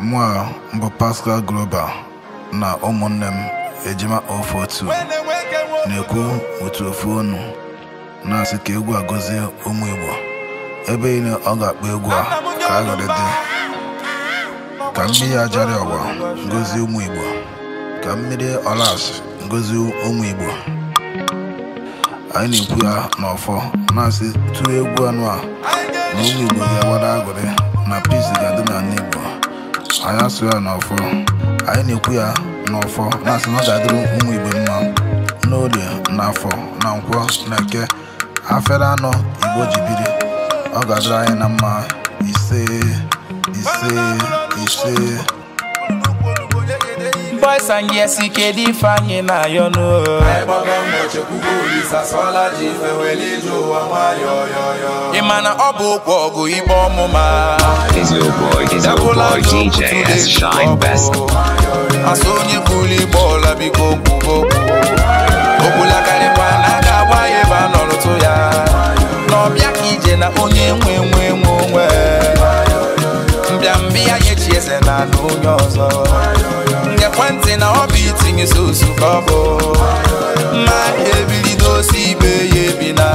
mụa mbụ Pascal Groba na ụmụnne m ejima otu na-ekwu otu ofu onu na-asị ka egwu a gọzie ụmụ Igbo ebe niile ọ ga-akpọ egwu a ka aghọrị dị ka mmiri ajarị ọwa ngozi ụmụ Igbo ka mmiri ọlas ngozi ụmụ Igbo anyị na-ekwu ya n'ọfọ na-asị tụọ egwu anụ a na ụmụ Igbo ga-agbara aghọrị na peace ga-adị n'ala Igbo anya asụrụ ya n'ọfọ anyị na-ekwu ya n'ọfọ na-asị na ọ ga-adịrị ụmụ igbo mma n'oge na afọ na nkwọ na eke afere anọ igbo ji biri ọ ga-adịrị anyị na mma ise ise ise boys and yes, he can define na you know. I bought them what you could do is a swallow chief and well, you do yo yo yo. Imana Obu Bogu Ibomuma. Is your boy, is your boy, DJ S Shine Best. I saw you bully ball, I be go go. Obula Kalipana, Kawaii, Banolo Toya. No, mbịa nye chi eze na ala onye ọzọ ngekwentị na ọ bụ itinye sosu ka ọ My mma ebilido osi ibe ya ebila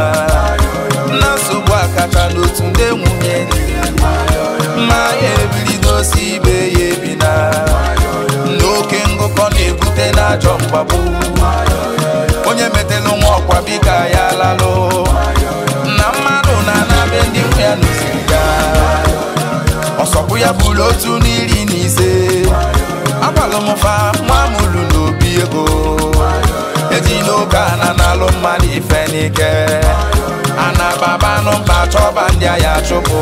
na nsogbu akacha n'otu ndị nwunye mma ebilido osi ibe ya ebila na oke ngụkọ na-ebute n'ajọ mgbagbu onye metela nwa ọkwa bika ya lalụ na mmadụ na-anabe ndị nwe ọsọkwụ ya bụrụ otu n'iri na ise agbalụ m nwa mụrụ n'obi ego eji n'oge ana na-alụ mmadụ ife n'ike ana chọba ndị agha chụpụ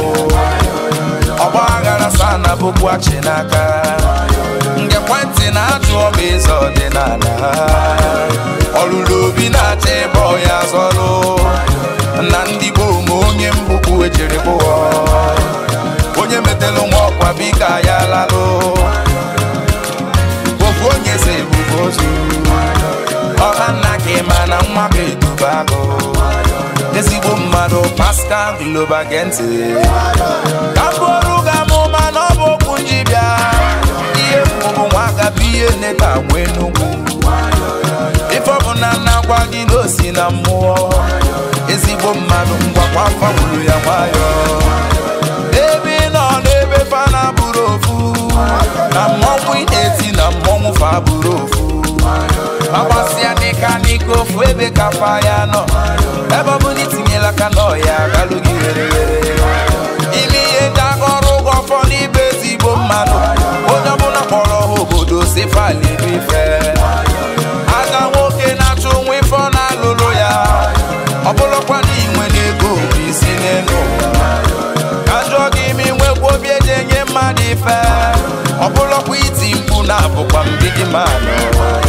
ọgba aghara na ana bụkwachi n'aka nge kwentị na-ajụ ọba eze ọdịnala ọlụlụ obi na-acha ịbọ ya zọlụ na ndị gboo ma onye mbụkwu ejiri bụọ onye metelu nwa ọkwa biko ya lalụ ofu onye si ebubo ozu ọha nna gị ma na nwa ga-eduba agụ ezigbo mmadụ Pascal Globa gee ka m bụrụ ga n'ọwa ya nọ ebe ọ bụla itinyela aka n'ọhịa, galụ gị were were ime ihe ndị aka ụgwọ ọfọ n'ibe ezigbo mmadụ, onye ọbụla kpọrọ ha obodo si falibife Aga nwoke na-achụ nwa ife ọ na-alụlụ ya ọ na inwe n'ego bụ isi n'elu ajụọ gị ime nwekwa obi eji enye mmadụ ife ọ iti mkpu na-abụkwa mbidi mmadụ.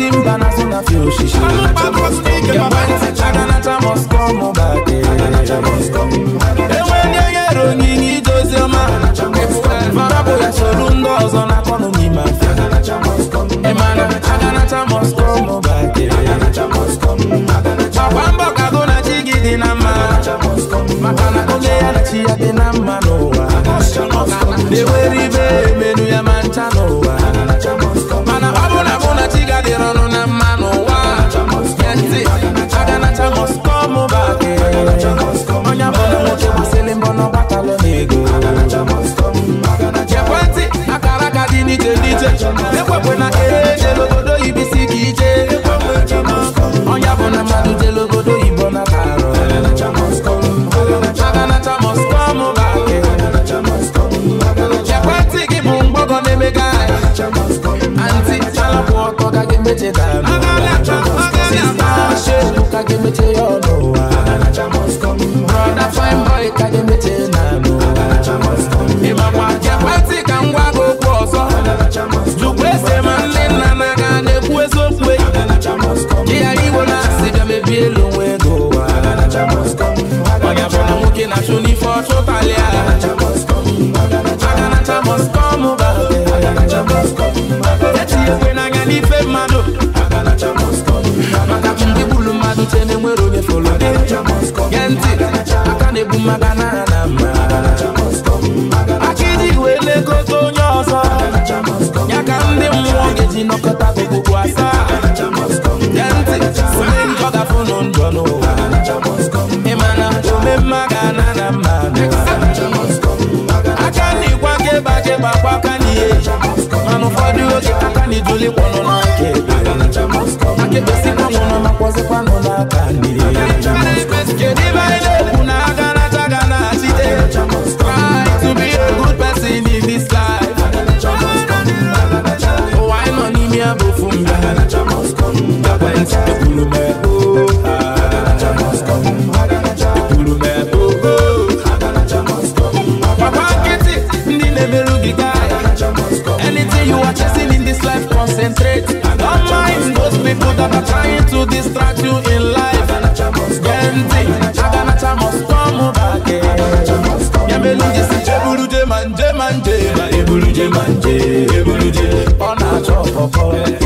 simba na so na she she must must come back must come back Marabu ya ọzọ na kono must come back that aka iji wee lekọta onye ọzọ people that are trying to distract you in life. Gente, Aganacha must come back. Eh. Yamelungi si Jeburuje manje manje, Eburuje manje, Eburuje. Ona chop up.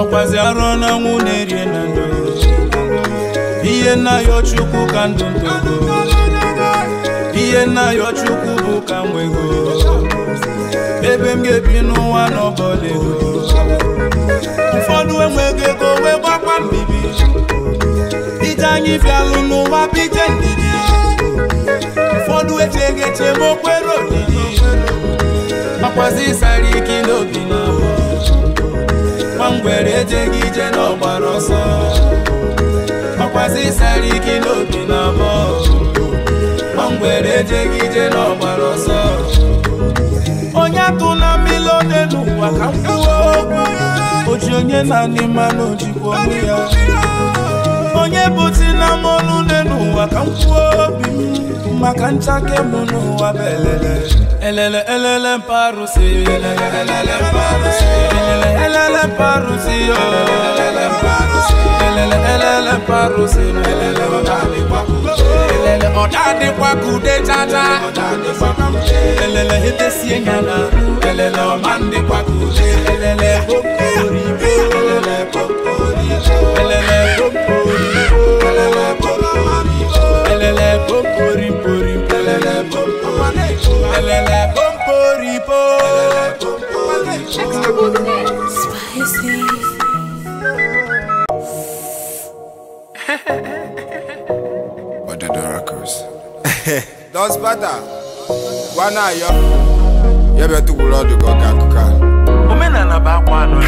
ọkwazi arụ n'ọnwụ na-erie na ndụ ihe nnaghị ya ka ndụ ndụ ihe nnaghị ya bụ ka nwego ebe m ga-ebi n'ụwa n'ọbọla ego ụfọdụ enweghị ego wee gbakwa mbibi ije anyị bịalụ n'ụwa bije ndidi ụfọdụ echeghị eche ma okwere olili makwazi ịsara ike n'obi na nwangwere ejeghị ije n'ọgbara ọsọ makwazi ịsara ike n'obi na abụọ nwangwere ejeghị ije n'ọgbara ọsọ onye naanị mmanụ jikwa ọnụ onye bụti na mọlụ nne n'ụwa ka m kwuo obi maka nchake m n'ụwa bụ elele elele elele mparụsi elele mparụsi elele elele mparụsi oh. elele elele mparụsi elele mparụsi elele elele etesie nya elele ọma ndịkwa ka ude elele okori Dos bata wana yo yebe tukulo dugo kankuka omenana ba kwano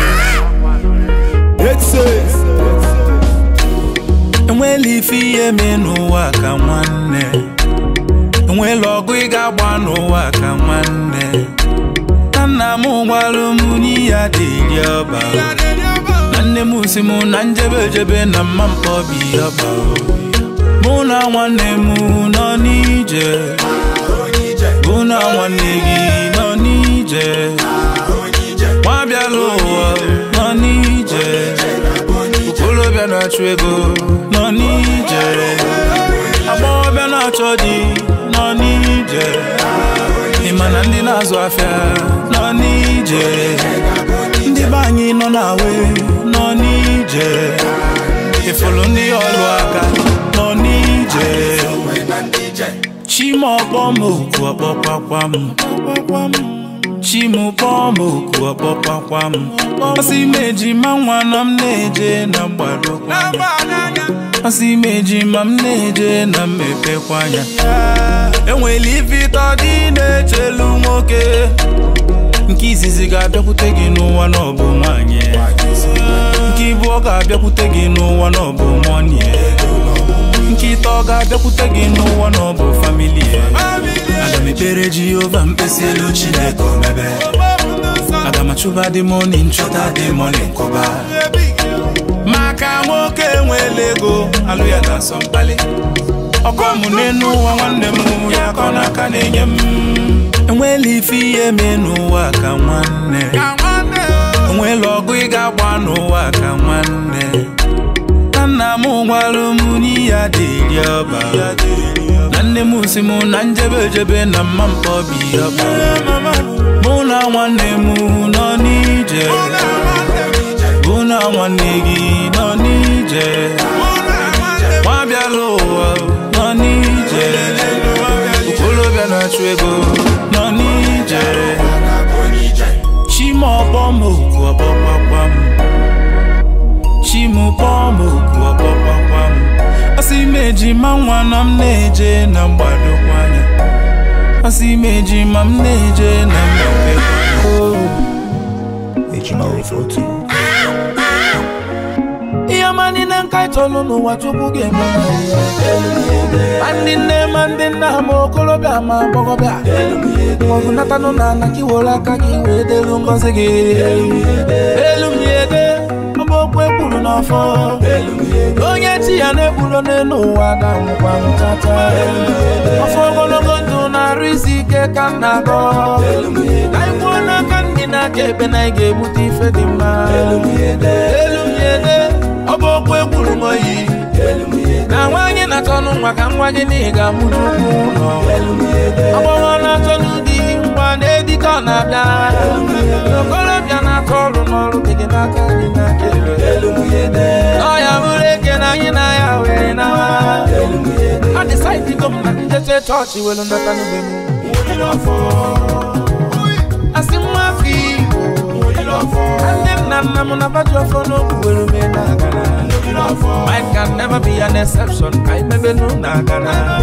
It says enwela ife ihe mee n'ụwa ka nwanne enwela ọgụ ị ga-agba n'ụwa ka nwanne na nna m gbara m n'iya dịri ọba na nne m si m na njebe ejebe na mma mkpọbi ọba mụ na nwanne m nọ n'ije mụ na nwanne gị nọ n'ije nwa bịala ụwa nọ n'ije olóbẹ̀ náà tún ego náà ní ìjẹ̀rẹ̀ àmọ́ ọbẹ̀ náà tọ́ di náà ní ìmọ̀nà ndị zo afịa nọ je, ndị be anyị nọ n'awe nọ n'ije ifulu ndị ọlụ aka nọ n'ije chima ọkpọ m oku ọkpọkwakwa m chi m kpọọ m oku ọkpọpakwa m ọsị m ejima nwa na m na-eje na mgbadokwa anya ọsị m ejima m na-eje na mmepekwa anya enwere ife ịtọ dị na-echelu nwoke nke izizi ga-abịakwute gị n'ụwa n'ọbụ nwanyị nke ibu ọ ga-abịakwute gị n'ụwa n'ọbụ mọni nke ịtọ ọ ga-abịakwute gị n'ụwa n'ọbụ famili mepere jehova mkpesielu chineke omebe aga dị moni nchọta dị moni nkụba maka nwoke nwere ego alụ ya na-asọ mkpali ọkọ m n'elu ụwa nwanne m ya ka ọ n'aka na-enye m enwela ife ihe mee n'ụwa ka nwanne onwela ọgụ ị ga-agba n'ụwa ka nwanne nna m gwalụ m n'ihe adịghị ọba nwanne m si mụ na njebe ejebe na mma mkpọbi ọkpa mụ na nwanne m nọ n'ije mụ na nwanne gị nọ n'ije nwa ụwa nọ n'ije okolobịa na-achụ ego nọ n'ije chima ọbọm oku ọbọkpakpam mejima mwana m na-eje na mgbadokwanya asị mejima m na-eje na mgbadokwanya ihe ma niile nka chọlụ oh. n'ụwa chukwu ga-eme ma ndị nne ma ndị nna ma okorobịa ma agbọghọbịa maọbụ natanụ na anakiwere aka gị wee delu ngọzi gị elu m ya ede n'ọfọ onye chi ya na-ekpuro n'elu ụwa na-anwụkwa ọfọ ogologo ndụ na-arụ isi ike ka m na-agọ anyị kwuo n'aka ndị na-aka ebe na anyị ga-ebute ife dị mma elumyede ọ bụ okwu egburu m oyi na nwaanyị na-achọ nwa ka nwa gị na ị ga-amụ n'ugwu ụlọ agbọghọ na-achọ n'ụdị nwa na-edike na-abịa ọrụ n'ọrụ gị gị n'aka gị n'aka ọya mụrụ eke na anyị na ya were nawa adịsaịdigo m na njeche chọọchị welu ndọta n'ugbe m asị nwa afọ igbo nne m na nna m na baji ọfọ n'okwu were ume na agara I can never be an exception. I maybe no nagana.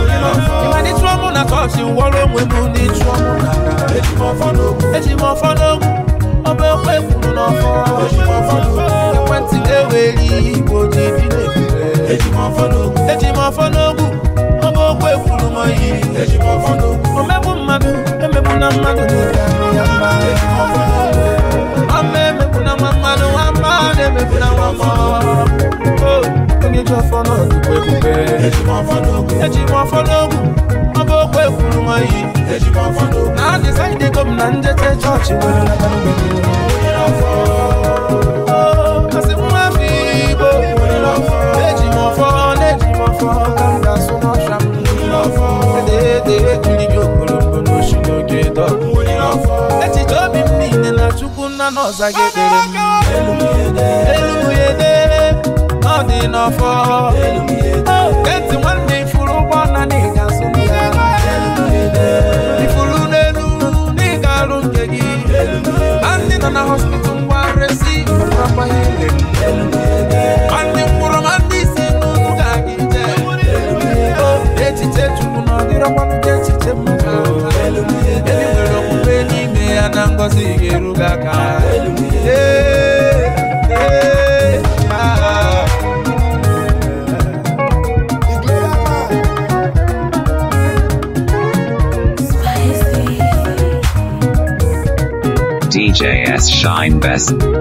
If I need trouble, na touch you. Wallow with me, need trouble. Eji mo follow. Eji mo follow ọba ekwe kwuru n'ọfọ ekwentị ga-eweli igbo ji bi n'ebule eji m ọfọ n'ogwu ọba okwe kwuru m oyi omegbu mmadụ emegbu na mmadụ ya mba ama emegbu na nwa mmadụ nwamba na-emegbu na nwamba oh, onye ji ọfọ n'ogwu eji m ọmọ yìí tẹ̀síkọ́ fọ́tò. náà ní sáyidé gómìnà ń jẹ́ tẹ́ chọ́ọ̀chì wẹ̀rẹ̀ lágbàdo gbẹ̀dẹ̀. òwe lọ fọ́. ó kàṣí mú àmì ìbò. òwe lọ fọ́. méjì mọ̀ fọ́ méjì mọ̀ fọ́ kàńdà súnmọ́ sàmì. òwe lọ fọ́. dédé kiri bí òkòlòkò ló ṣì ló gé lọ fọ́. echiche obi m niile na chukwu nna na ọza gedere m. elumuyede elumuyede ọ dị n'ọfọ. elumuyede on the hustle. Shine Best.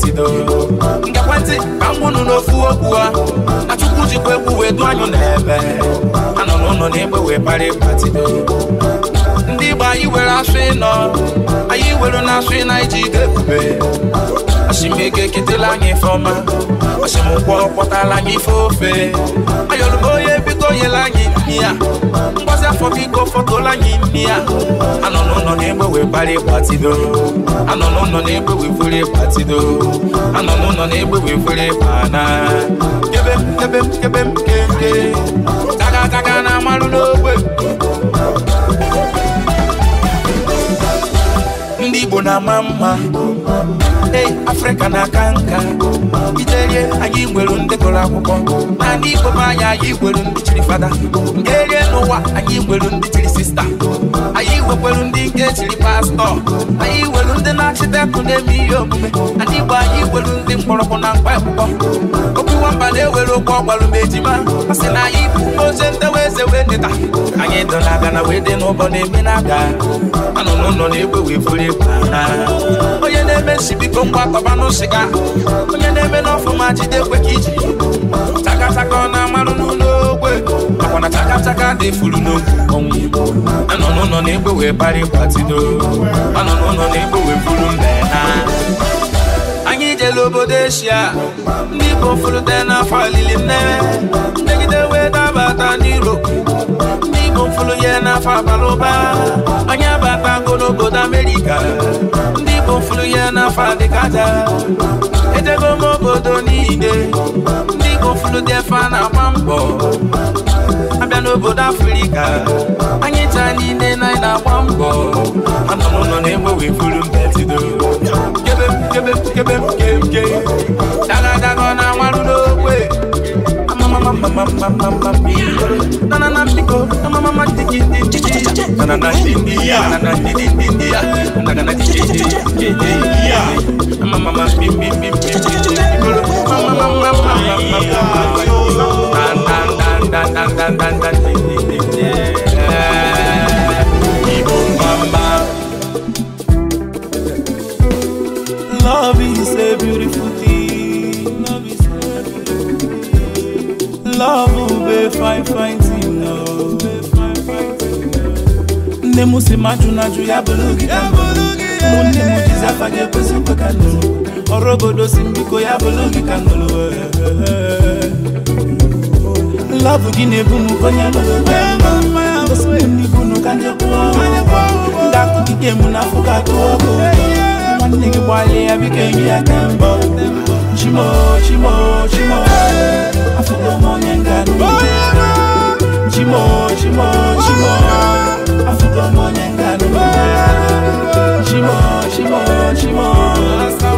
etido ngekwentị ka m gbunu n'ofu okwu a na chukwu jikwa egwu wee du anyụ n'ebe anọ n'ụlọ n'egbe wee kpara ịkpatido ndị igbo anyị were asụ ịnọ anyị were na asụ ịna iji ide ebube osimike ketela anyị ifeọma osimụkwọ kpọtala anyị ife ofe ayọrụba imi ya anọ n'ụlọ na-egbewe kpara tidoro. anọ n'ụlọ na-egbewe fere tidoro. anọ n'ụlọ na-egbewe fere ịkpana kebe m kebe m kebe m kebe daga taka na amarụ n'ogbe ndị Igbo na-ama mma ee Afrịka na-aka nka ijeye anyị nwere ndị gụrụ akwụkwọ Na igbo m anya anyị nwere ndị chiri fada nke n'ụwa anyị nwere ndị chiri sista anyị nwekwere ndị nke chiri pastọ anyị nwere ndị na-achịtekụ na-eme ihe omume anyị igbo anyị nwere ndị mkpọrọgwụ na mkpa akwụkwọ okwu nwamba na-ewere okwu ọgwara ma ejima a sị na anyị bụ oche ndewa eze wee dịta anyị dọla aga na wee dị n'ụbọ na-eme na aga anọ n'ụlọ na-egbe wee buru egwu onye na-eme nsibiko biko ngwa kọbanụ sịga onye na-eme n'ọfụma jide ekwe ka iji takataka ọ na-amarụ n'ụlọ ogwe makwa na takataka dị furu n'ogwu ọnwụ anọ n'ụlọ na-egbe wee bara ịgbatido anọ n'ụlọ na-egbe wee mbe na anyị jere obodo eshia ndị igbo fụrụte n'afọ alili nne megide wee dabata n'iro ofulu ya n'afọ abalị ụba onye babago n'obodo amerika ndị Igbo ofulu ya n'afọ adịkada ejego m obodo niile ndị Igbo ofulu dị efe na-agba mbọ abịa n'obodo afrika anyị taa niile na anyị na-agba mbọ na-egbe mbetido kebe kebe kebe mama mama mama na na na shiko na mama mama tiki tiki na na na shindi na na na di di di na na na di di di ya mama mama mi mi mi mi mama mama mama mama na na na na na na na love ube oh, fine fighting thing no oh. nne m si ma jụ na ajụ ya bụlụgị ụmụnne m jizi afa gị ekwesị nkwe ka ya bụlụgị ka eh, eh, eh. Love lọbụ gị na-ebu m onye nibunu ka ndị kwụọ ndị akụkike m n'afọ ka tụọ ọkụ nwanne gị gbalịa ya biko ya ka chimo chimo chimo afọ onye ngano chimo chimo chimo afuka mone ngano chimo chimo chimo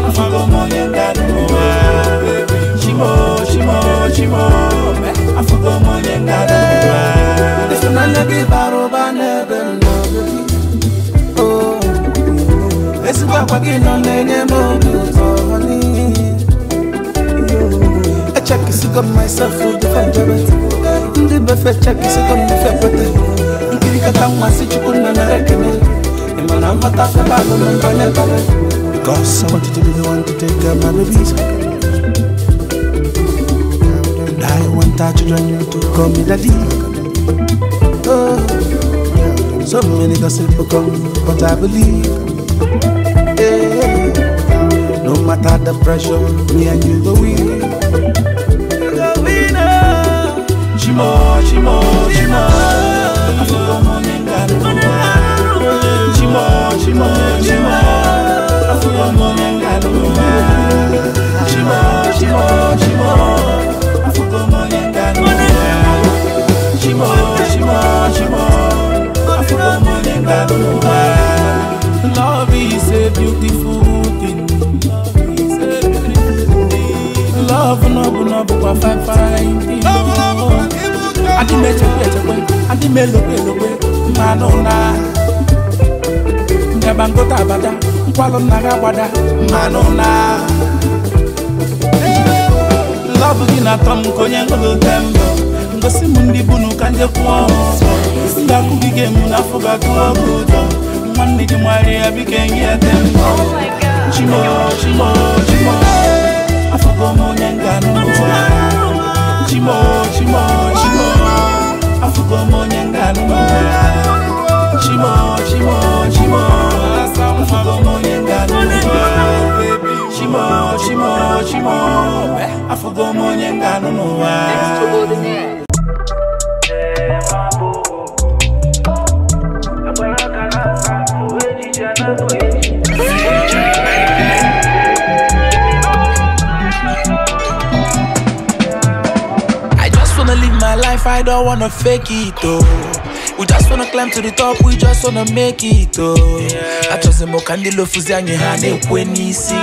afuka mone ngano chimo chimo chimo afuka mone ngano esinana ke baro bane eh, beno oh esikwa kwa kinonenye mo comme myself to ndị befe si Because I want to be the one to take care of my babies. And I want our children to call me daddy. Oh, so many gossip come, but I believe. Yeah. No matter the pressure, me and you go with chimo chimo chimo avuka munengano chimo chimo chimo avuka munengano chimo chimo chimo avuka munengano chimo chimo chimo avuka munengano love is a beautiful thing love no bu no bu kwa fine fine thing adị m echekwe echekwe adị m elokwe elokwe mmanụ na ndeba ngota abada nkwalụ nna gị agbada mmanụ na lọbụ gị na-atọ m ka onye ngolote mbụ ngosi m ndị bunu ka njekwuo m Ndị akụ gị ga-emu n'afọ ga-agụọ gị ụtọ. nwanne gị nwari ya biko enye ete mbọ chimo chimo chimo afọgo m onye nga ga-anụ gomonya ngaluma Chimo, chimo, chimo Asamufa gomonya ngaluma Chimo, chimo, chimo Afu gomonya ngaluma Next to all the I don't wanna fake it though. We just wanna climb to the top, we just wanna make it though. Yeah. Achọzi ka ndị lofuzi anyị ha na-ekwe n'isi.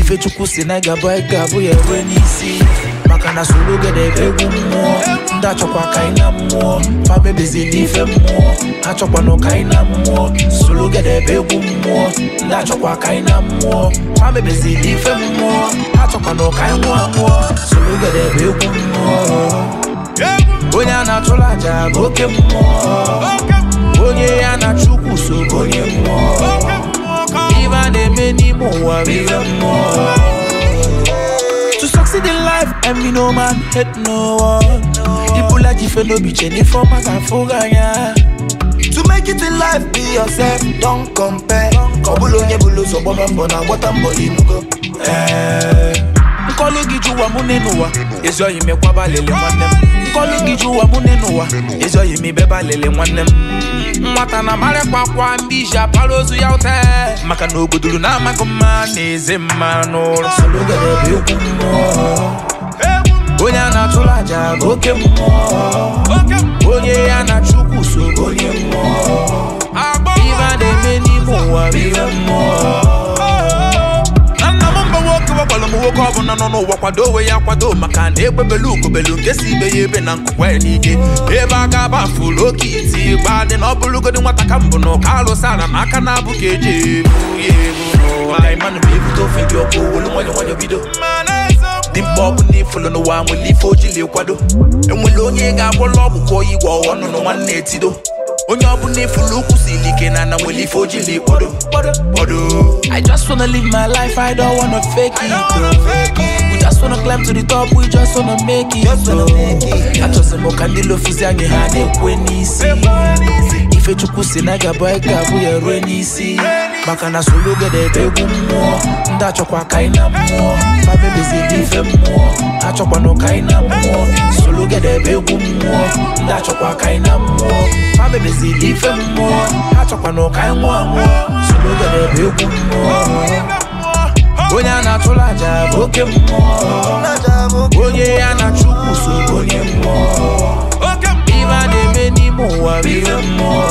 Ifechukwu si na ịgabụ ịgabụ ya ekwe n'isi. Maka na soro gede ebe egwu mmụọ, ndị achọkwa ka ị na mmụọ, ma mebezi n'ife mmụọ, achọkwana ka anyị na mmụọ, egwu mmụọ, ka na mmụọ, mmụọ, ka mmụọ, mmụọ. Oje an a chola ja boke mwa Oje an a chou kousou boke mwa Iwan e meni mwa biye mwa To saksi di life e mi nouman het nouwa I pou la jife nou bi chen ni foma zan fouga nja To make it di life bi yo zem ton kompe Kon bolo nye bolo sou bo men bonan wotan bo i mgo Eee eh. Mko le gi juwa mounen ouwa Ezo yime kwaba leleman em kọlụ gị ji ụwa mụ ne n'ụwa ịzọghị m ibeba lele nwanne m nwata na amarakwa akwa ndị iji apara ozu ya ụta maka na ogodoro na-amaghị mma na eze mma n'ụlọ onye a na-atụrụ aja bụ oke mmụọ onye ya na chukwu so onye mmụọ ibe a na-eme n'ime ụwa bụ ihe mmụọ nwoke ọbụla nọ n'ụwa kwado onwe ya kwado maka na egbebelu ugobelu nke si ibe ya ebe na nkụkwa ya n'ike ebe aka aba fụrụ oke isi gba dị na ọ bụrụgodi nwata ka mbụ na ụka alụsị ala ma aka na-abụ ka eji ebu ya ebu maka ịmanụ ma ofe dị ọkụ olu nwayọ nwayọ bido dị mkpa ọ bụ na ifulu n'ụwa nwere ife ojili kwado enwere onye ga-agwọla ọgwụ ka oyi gwọ ọnụ na nwanne etido onye na na nwere ife kpodo I just wanna live my life, I don't wanna fake it We just wanna climb to the top, we just wanna make it though. Achọsị the ka ndị lofuzi and ha na-ekwe chukwu si na ga bụ anyị ga-abụ ya rue n'isi maka na solugede ebe egwu mmụọ ndị achọkwa ka anyị na mmụọ dị ife mmụọ achọkwanụ ka anyị na mmụọ solugede ebe egwu mmụọ ndị achọkwa ka anyị na mmụọ dị ife mmụọ achọkwanụ ka anyị nwụọ anwụọ solugede ebe egwu mmụọ onye a na-atụla aja bụ oke mmụọ onye ya na Chukwu so onye mmụọ ibe a na-eme amour, vive l'amour.